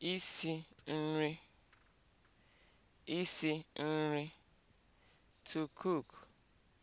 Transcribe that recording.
isi nri isi nri (to cook)